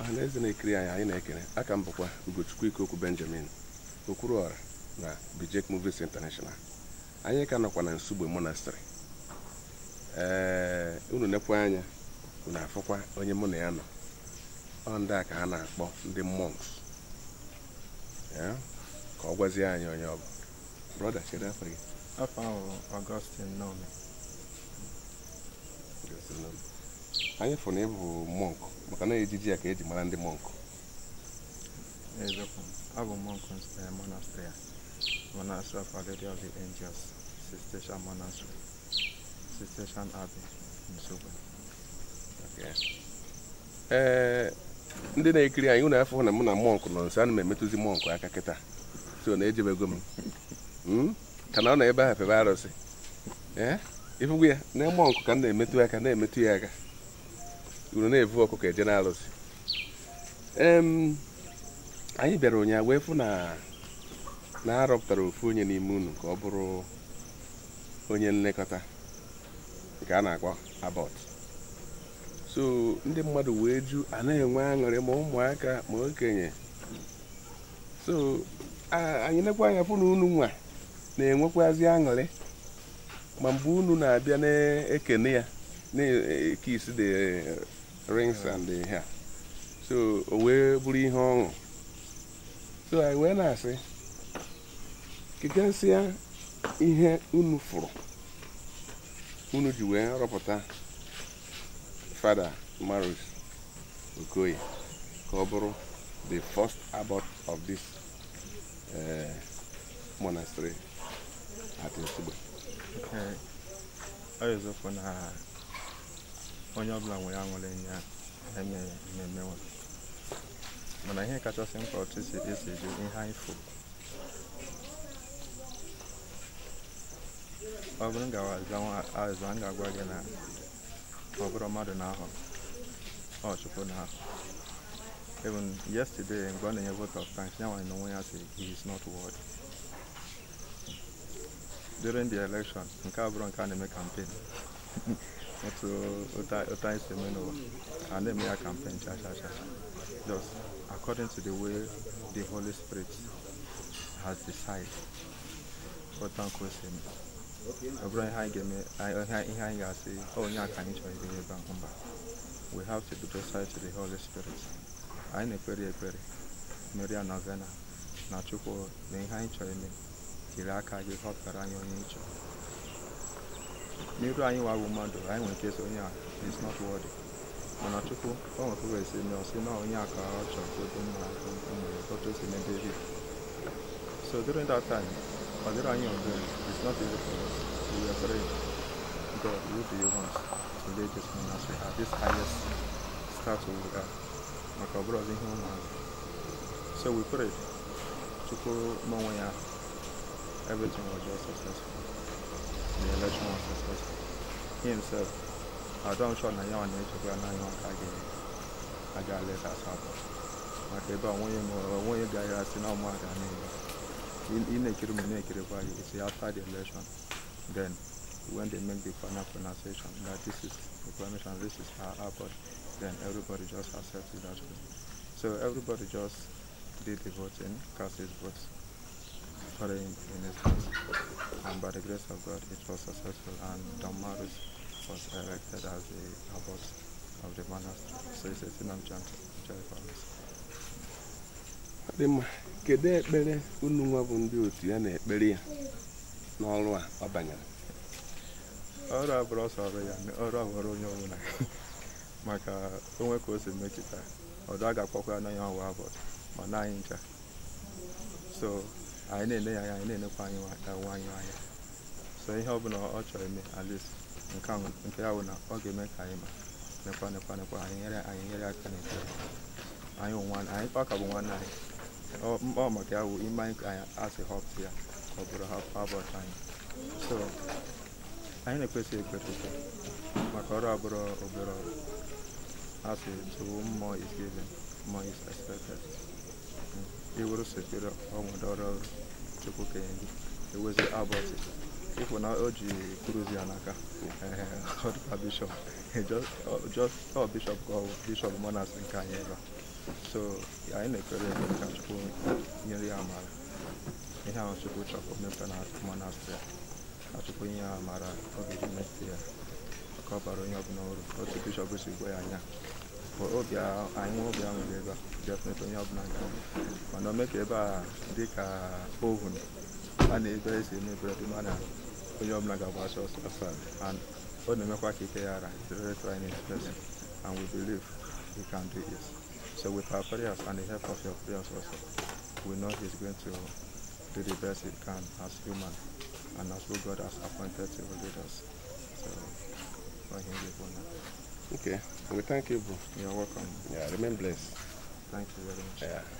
ọha na eze na-ekiri anyị anyị na-ekele aka m bụkwa ugochukwu ikoku benjamin okwuruọra na bijek movies international anyị ka nọkwa na nsugbe monastrị ee unu nekwa anya unu afọkwa onye mụ na ya nọ ọ ndị a ka ha na-akpọ ndị monks ka ọ gwazie anyị onye ọ brọda afọ gị afọ ahụ Augustine Nome anyị fụrụ na ịbụ mọnkụ maka na ejiji ya ka eji mara ndị mọnkụ eziokwu abụ mọnkụ monastery monastery of Our Lady of the Angels Cistercian monastery Cistercian Abbey Nsugbe ee eh, ndị na-ekiri anyị ụlọ afọ na mụ na mọnkụ nọ nso ana m emetụzi mọnkụ aka kịta so na ejebego m hmm? ka na ọ na ebe ahụ pebe arụsị ee eh? ịfụgwu ya na mọnkụ ka m na-emetụ aka na-emetụ ya aka uru na evu ọkụkọ eje n'alụsị anyị bịara ụnyaahụ wee fụ na na arọpụtara ofu onye n'ime unu ka ọ bụrụ onye nlekọta nke a na-akpọ abọt so ndị mmadụ wee ju anaghị enwe aṅụrị ma ụmụaka ma okenye so anyị nekwa anya fụ na unu nwa na-enwekwazi aṅụrị ma mgbe unu na-abịa na-ekene ya na-eke isi rings and the hair so o wee bụrụ ihe ọṅụ so anyị wee na-asị kegasịa ihe unu furu unu ji wee rọpụta father Marius Okoye ka ọ bụrụ the first abbot of this eh, monastery at Nsugbe onye ọbụla nwere aṅụrị nye eme mmemme e mana ihe kachasị mkpa otu si esi eji ihe anyị furu ọ bụrụ azụ a ga-agwa gị na ọ bụrụ mmadụ na-ahụ ọ chukwu na-ahụ even yesterday mgbe ọ na-enye vote of thanks ya nwanyị na onwe ya si he is not worthy during the election nke abụrụ nke a na-eme campaign nti ota ota ese mi no and then me a campaign cha cha cha just according to the way the holy spirit has decided ọtan kọ ese mi ọbụrụ ihe anyị ga-eme ihe anyị ga-asị ọ onye aka anyị chọrọ ebe ebe ahụ mba we have to be docile to the holy spirit anyị na-ekpere ekpere mmeri novena na chukwu na ihe anyị chọrọ ime tiri aka gị họpụtara anyị onye ịchọrọ n'iru anyị wawo mmadụ anyị nwere ike so onye a is not worthy mana chukwu o nwere kwuwe si na ọsị na onye a ọ chọrọ ka obi mma nwere otu si n'ebe ebi so during that time ọ dịrị anyị ọgụ is not easy for us we were praying god who do you want to lead this monastery at this highest status we are maka ọ bụrụ ihe ụmụ so we prayed chukwu n'onwe ya everything was just successful the himself, I'm sure now you're on the HQ and now you're on Kagi, I got less as well. Okay, but when you when you guys are still not mad, I mean, in a kid, in a kid, it's after the election. Then, when they make the final pronunciation that this is the permission, this is our output, then everybody just accepts it as way. So everybody just did the voting, cast his votes for him in his house. by the grace of God it was successful and was elected as the abbot of the monastery. So it's a thing ekpere unu nwa bụ ndị otu ya na-ekpere ya n'ọrụ a ọ banyere? Ọrụ a bụrụ ọsọ ọrụ ya, ọrụ a nwere onye ọbụla maka onwe ka o si mechita ọdụ a ga-akpọkwa ya na ọwa abụọ ma na anyị ncha so anyị na-ele ya anya anyị na-enekwa anyị onwe anyị anya so ihe ọbụla ọ chọrọ ime at least nke ya bụ na ọ ga-eme ka anyị ma nekwa nekwa nekwa anyị nyere anyị nyere aka n'ekpere anyị nwa anyị kwa ka bụ nwanne anyị ọ maka ya bụ ime anyị ka anyị asị họpụ ya ka ọ bụrụ hapụbọchị anyị so anyị na-ekwesị ekwetụta maka ọrụ abụrụ obere ọrụ asị tuwo mmụọ isi ebe mmụọ isi expected hmm. iwuru sekere ọnwụdọrọ chukwu kenye gị ewezi abọchị ịfụ na o ji kruzi ya n'aka ọdụka bishọp ọ bishọp ka ọ bishọp monas nke anyị ebe so anyị na-ekpere ekpere ka chukwu nyere ya amara ihe ahụ chukwu chọrọ mepe na monastrị ka chukwu nye amara ya ka onye ọbụla ọrụ otu bishọp si ya anya obi anyị obi a ebe a oh, definitely onye ọbụla ga mana o mee ka ebe a dịka ovun and very and we believe he can do it so with our prayers and the help of your prayers also we know he's going to do the best he can as human and as who God has appointed to lead us so for him honor okay we thank you bro you're welcome yeah remain blessed thank you very much yeah.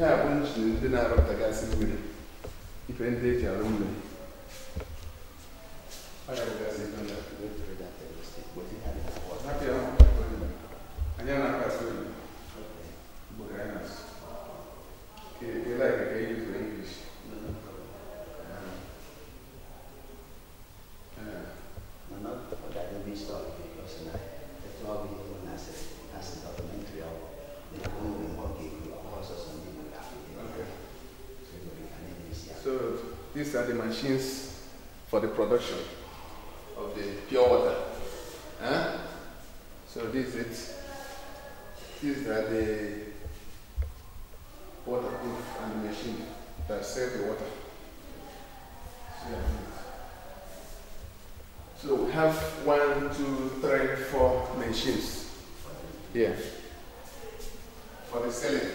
ihe a bụ nchi ndị na-arụpụtagasị mmiri ife ndị eji arụ mmiri these are the machines for the production of the pure water. Huh? So this is These are the waterproof and the machine that save the water. So we have one, two, three, four machines here for the selling.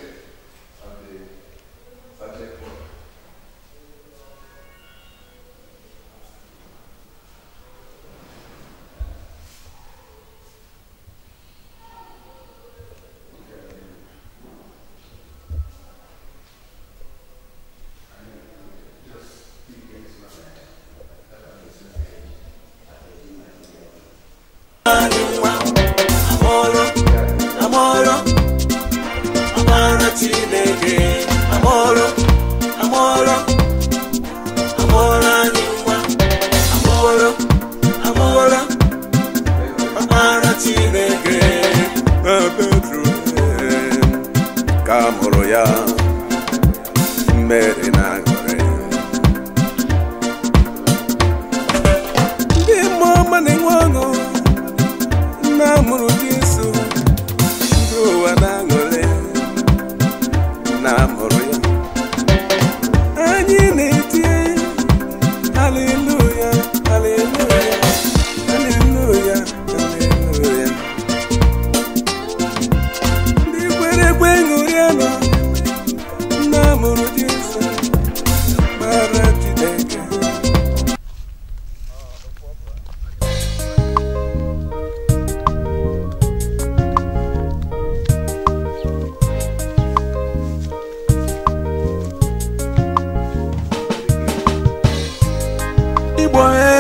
What.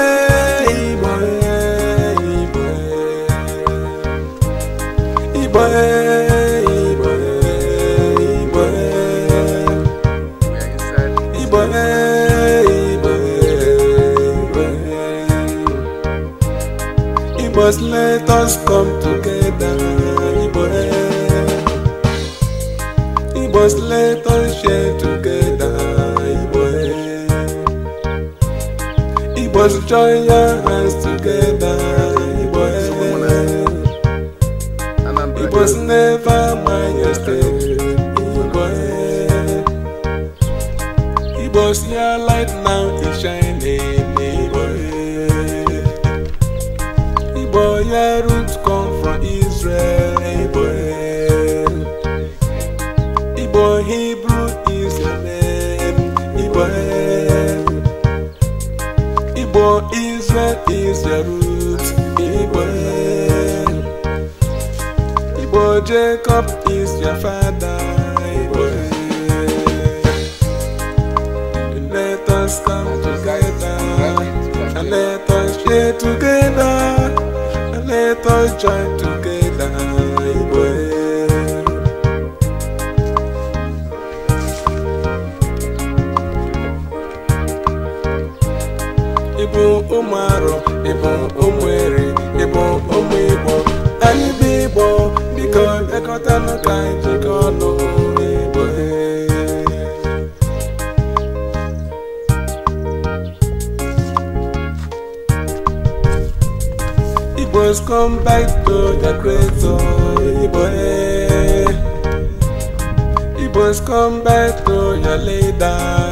Igbo should join your hands together. Igbo, Igbo was never my yesterday. Igbo, Igbo, see your light now is shining. It was your. Israel is the root. Iboel. Ibo Jacob is your father. Iboel. Let us come. together. And let us share together. And let us join together. ụmụ arụ ịbụ ụmụ eri ịbụ ụmụ igbo anyị bụ igbo biko bịakọtanụ ka anyị jikọ ọnụ n'igbo e. Igbos come back to their creator igbo e. Igbos come back to your leader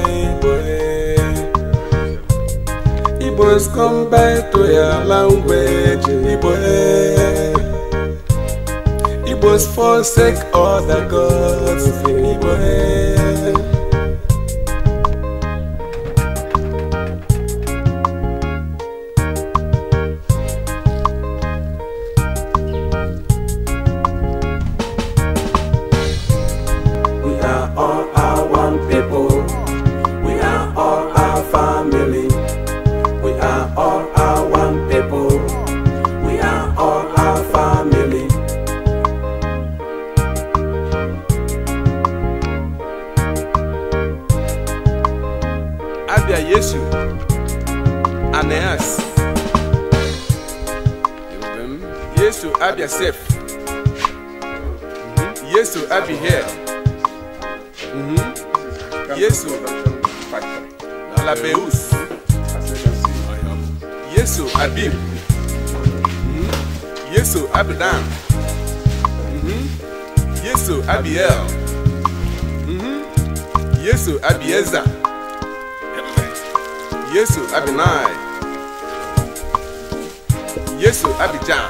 Igbo's come back to your language, Igbo. Igbo's forsake all the gods, Igbo. you. And Yes, to have yourself. Mm-hmm. Yes, to have you here. Mm-hmm. Yes, to Alabeus. Yes, to Abib. Yes, to Abidan. Yes, to Abiel. Yes, to Abieza. yesu abinai yesu abijan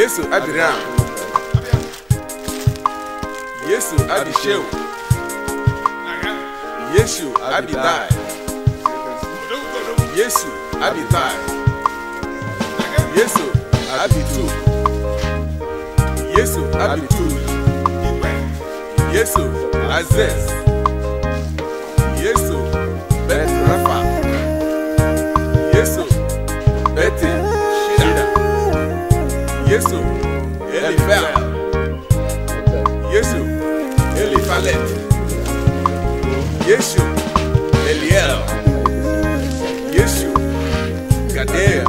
yesu abiram yesu abisheu yesu abidai yesu abidai yesu abitu yesu abitu yesu azez. Yesu, Elifa. Yesu, Elifalet. Yesu, Eliel. Yesu, Gadea.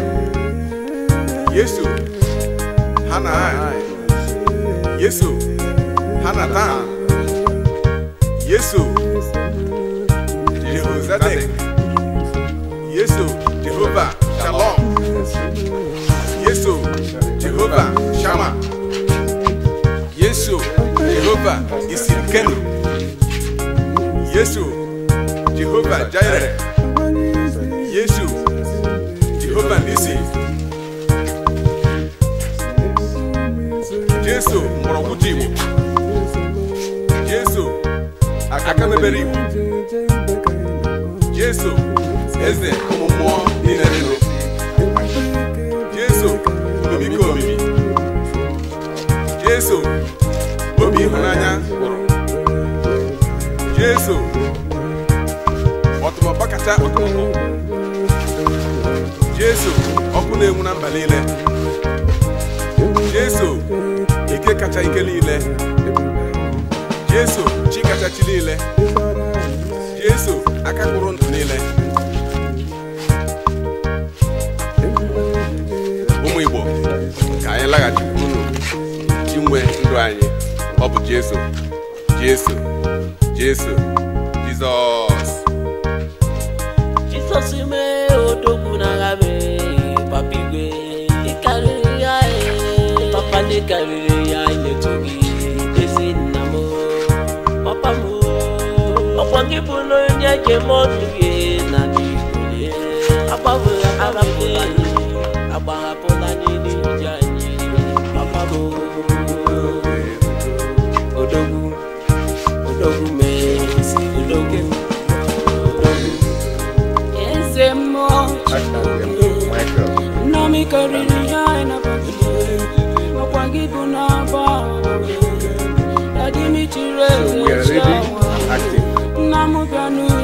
Yesu, Hanai. Yesu, Hanatan. Yesu, Jehozadak. Yesu. Shama, Yesu, Jehovah Isikenu, Yesu, Jehovah Jireh, Yesu, Jehovah Nisi, Yesu Morokuti Igbo, Yesu Akamebere Igbo, Yesu Eze ụmụ mmụọ Jesu obi ịhụnanya Jesu ọtụmọkpa kacha ọtụmọkpọ Jesu ọkụ na-enwu na mba niile Jesu ike kacha ike niile Jesu chi kacha chi niile Jesu aka kpụrụ ndụ niile ụmụ Igbo ka anyị laghachikwuru iji nwe ndụ anyị ọ bụ Jesu Jesu Jesu Jizọs Jizọs mee odogwu n'agha mee papa karịrị ya papa karịrị ya emetụ gị ezi nna m papa m ọkwa gị bụrụ onye je m gị na agbaghapụla agbaghapụ We are ready, active.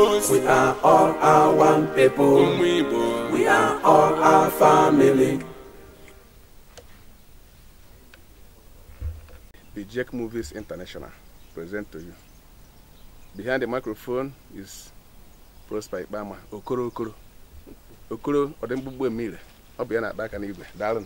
We are all our one people. We are all our family. The Jack Movies International present to you. Behind the microphone is Prosper Ibama, Okoro Okoro. Okoro Odemgbugbo Emile. Ọ bụ ya na-akpa aka n'igwe. Daalụ.